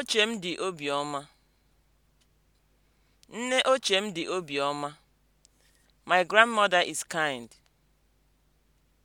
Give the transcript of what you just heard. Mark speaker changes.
Speaker 1: ochie m dị obiọma. Nne ochie m dị obiọma. My grandmother is kind.